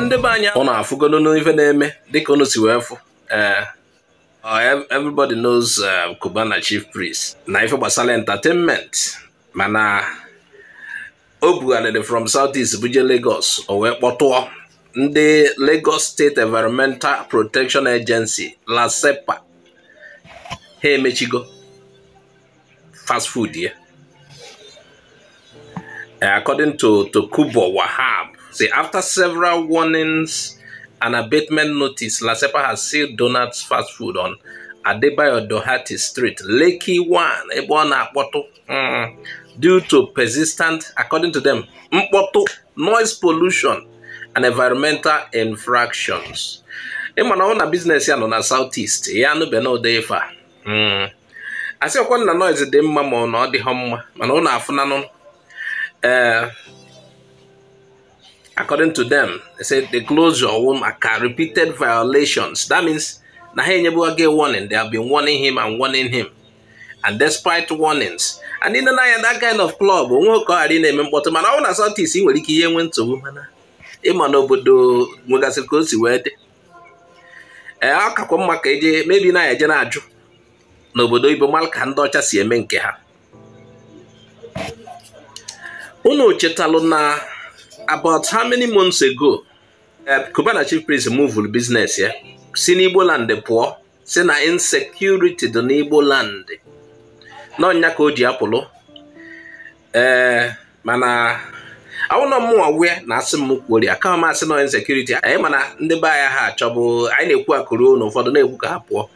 ndị be anyị na afụgolo n'ife na-eme dịka unu si wee fụ eh, oh, everybody knows eh, Cubana Chief Priest na ife gbasara entertainment mana o bugharịrị from South East buje Lagos o wee kpọtụọ ndị Lagos State Environmental Protection Agency LASEPA ha emechigo fast food ya eh, according to Tokubo Wahab Say after several warnings and abatement notice, Lasepa has sealed Donuts Fast Food on Adebayo Dohati Street, Lakey One. Ebona Akpoto, mm, due to persistent, according to them, Mpoto, noise pollution and environmental infractions. ịmana ọ na business ya nọ na southeast ya anụbe na odefa mm. asịkwa na noise dị mma ma ọ na ọ home mma mana ọ na-afụnanụ ee eh, according to them they say they close your womb aka repeated violations that means na ha enyebu gị warning they have been warning him and warning him and despite warnings and in nọ that kind of club onwe ka ari na-eme mkpọtụ mana ọ na sọtis ị nwere ike ihe nwe nsogbu mana ịma n'obodo nwegasịrị ka o si wee dị ee eh, ọ kakwa mma ka eje mebi na eje na-ajụ n'obodo ibo ka ndị ọcha si eme nke ha unu chetalụ na about how many months ago Cubana uh, chief priest moved business ya si n'Igbo land pụọ si na insecurity dị n'Igbo land n'ọnya ka o ji apụlụ ee uh, mana awụna mụnwa wee na asị m kwori, ka m asị na insekuriti anyị eh, mana ndị be anyị ha achọbụ anyị na-ekwu akụrụ na ụfọdụ na-ekwu ka ha pụọ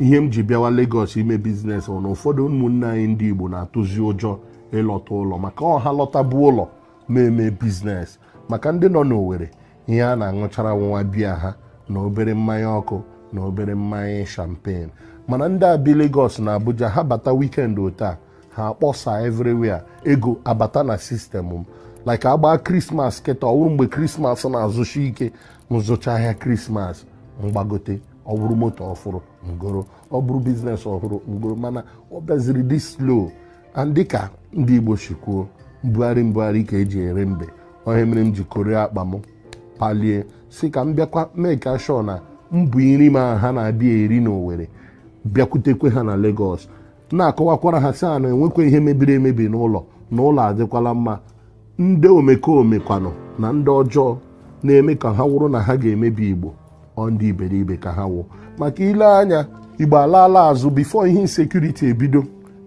ihe m ji bịawa Lagos ime biznes ọ na ụfọdụ ụmụnne anyị ndị Igbo na-atụzi ụjọ ịlọta ụlọ maka ọha lọta bụ ụlọ na-eme biznes maka ndị nọ n'Owerri ihe a na-aṅụchara nwa biya ha na obere mmanya ọkụ na obere mmanya champagne mana ndị abi Lagos na Abuja ha bata wikend a ha akpọsa everywhere ego abata na sistemụ m like agbaa krismas kịta ọwụrụ mgbe krismas na-azụcha ike nzụcha ahịa krismas mgbagote ọ moto ngoro ọ bụrụ biznes ọhụrụ ngoro mana ọ bịaziri dị slow dịka ndị Igbo si mbugharị mbugharị ka eji ere mbe onye mere m ji kore akpa m palie si ka m bịakwa meka shọ na mbụ iri ma ha na-abịa eri na bịakwutekwe ha na Lagos na-akọwakwara ha si a na enwekwa ihe mebiri emebi n'ụlọ na ụlọ adịkwala mma ndị omekome kwanụ na ndị ọjọọ na-eme ka ha wụrụ na ha ga-emebi Igbo ọ ndị iberibe ka ha wụ maka ile anya Igbo alaala azụ bifo ihe insekuriti ebido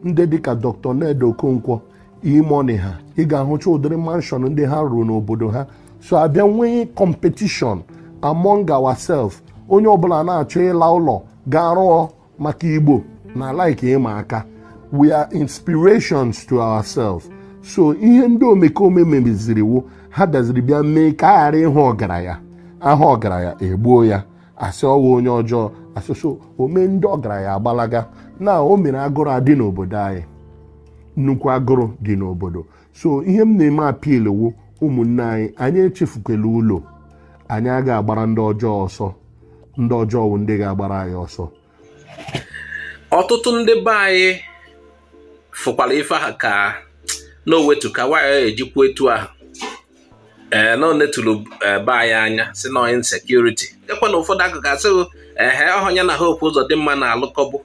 ndị dịka Dr. Ned Okonkwo imoni ha ị ga-ahụcha ụdịrị manshọn ndị ha rụrụ n'obodo ha so abịa nwee kọmpetishọn among ourselves onye ọbụla na-achọ ịla ụlọ gaa rụọ maka igbo na like ịma aka we are inspirations to ourselves so ihe ndị omekome mebiziri ha bịaziri bịa mee ka a ghara ịhụ ọgaranya aha ọgaranya egbuo ya asị ọwa onye ọjọọ asụsụ omee ndị ọgaranya agbalaga na o mere agụrụ adị n'obodo anyị nnukwu agụrụ dị n'obodo so ihe m na-eme apilwu ụmụnne anyị anyị echefukwala ụlọ anyị aga agbara ndị ọjọọ ọsọ ndị ọjọọ bụ ndị ga-agbara anyị ọsọ ọtụtụ ndị be anyị fụkwara ife ha ka na owetuka waya ejikwa etu ahụ ee eh, na eh, be anyị anya si na onye insekuriti dekwa na ụfọdụ akụkụ asịghị ehe na ha okwu ụzọ dị mma na-alụkọbụ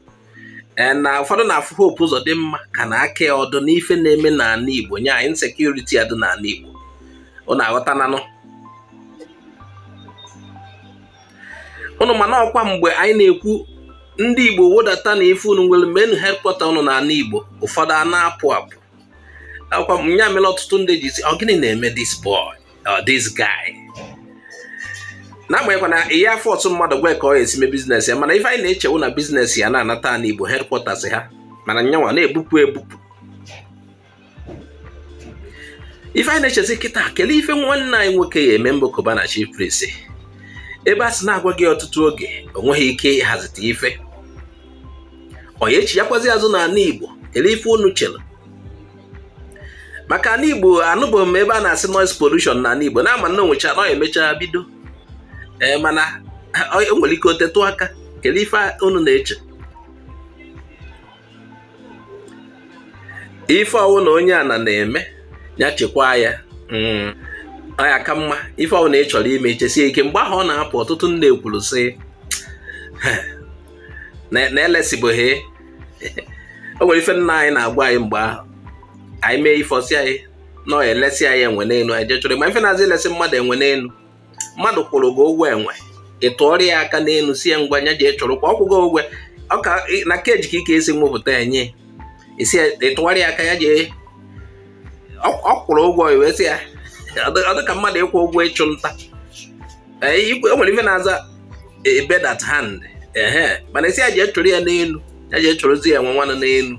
Eh, na ụfọdụ na-afụ hope ụzọ dị mma ka na aka ya ọdụ n'ife na-eme n'ala Igbo nye anyị nsekuriti adụ n'ala Igbo unu aghọtananụ unu mana ọkwa mgbe anyị na-ekwu ndị Igbo wodata na ife unu nwere menu hekpọta ụnụ n'ala Igbo ụfọdụ a na-apụ apụ ọkwa nya mere ọtụtụ ndị ji si ọ gịnị na-eme dis boy or dis gai. n'agbanyeghịkwa na ihe afọ ọtụ mmadụ gwa ka ọ esi mee bizinesị ya mana ife anyị na-echewu na bizinesị ya na-anata na igbo hedkwọtas ha mana nyanwa na-ebupụ ebupụ ife anyị na-echezi kịta kelee ife nwanne anyị nwoke ya eme mbokoba na chief prince ebe a sị na-agwa gị ọtụtụ oge o nweghị ike ịhazite ife onye echi ya kwazi azụ n'ala igbo kelee ife unu chere maka ala igbo anụbụ m ebe a na-asị noise pollution na ala igbo na ama na onwecha nọ emechaa bido Eh, mana nwere ike otetụ aka kedu ife unu na-eche ife ọwụ na onye a na na-eme ya chịkwaa ya mm. ya ka mma ife ọwụ na ị chọrọ ime chesie ike mgbe ahụ ọ na-apụ ọtụtụ nne kwuru sị na elesibụghị o nwere ife nna anyị na-agwa anyị mgbe ahụ anyị mee ife ọsị anyị nọ elesi anyị enwe n'elu anyị ma ife na-azị elesi mmadụ enwe n'elu mmadụ kwụrụ gị ụgwọ enwe ị tụọrọ ya aka n'elu si ya ngwa nya ji chọrọkwa ọkwụgo ụgwọ ọka na keji ka ka esi mụpụta enye ị tụgharị ya aka ya jee ọkwụrụ ụgwọ iwe si ya ọ dị ka mmadụ ịkwụ ụgwọ ịchụ nta e, o nwere ife na-aza e, e bed dat hand ehe mana isi ya jee chụrụ ya n'elu ya jee chụrụzi ya nwe nwanụ n'elu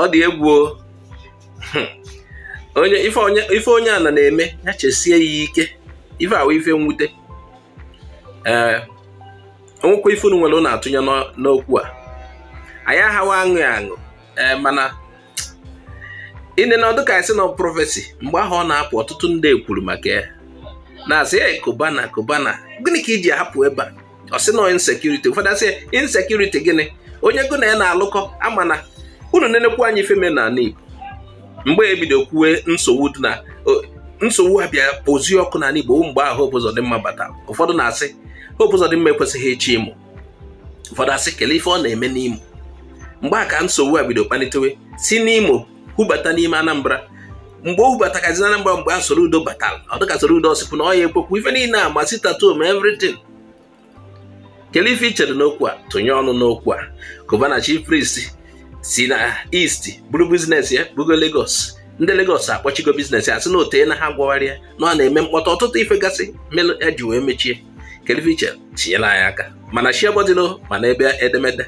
ọ dị egwu ife onye onye na na-eme ya chesie ya ike ife awa ife nwute ee eh, onwekwa ife unu nwere unu atụnye n'okwu a anyị aghawa aṅụ aṅụ ee eh, mana ine na ọdụ ka anyị na prọfesi mgbe ahụ ọ na-apụ ọtụtụ ndị ekwuru maka ya na-asị ya kobana kobana gịnị ka iji hapụ ebe a ọ sị na insekuriti ụfọdụ asị insekuriti gịnị onye gụ na ya na-alụkọ ama na unu nenekwu anya ife me na Igbo mgbe ebido kwuwe nsogbu dị na nsogbu ha bịa kpozie ọkụ n'ala Igbo mgbe ahụ Hope bata ụfọdụ na-asị Hope ekwesịghị ịchị Imo ụfọdụ asị kelee ife ọ na-eme n'Imo mgbe a ka nsogbu a bido kpalitewe si n'Imo hubata n'ime Anambra mgbe o hubatakazi Anambra mgbe a udo batara ọ dịka Soludo ọsịpụ na ọ ya ekwekwu ife niile a masị tattoo evritin everything kelee ife ichere n'okwu a tụnye ọnụ n'okwu a gọvanọ chi prist si na isti buru bizinesi ya bugo legos ndị Lagos akpọchigo biznes asị na ote na ha gwagharịa na ọ na-eme mkpọtụ ọtụtụ ife gasị melụ ya e ji wee mechie keleviche tinyela anyị aka mana ma mana ebe edemede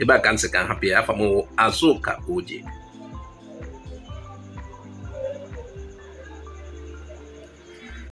ebe a ka nsị ka hapụ ya afọ ka oji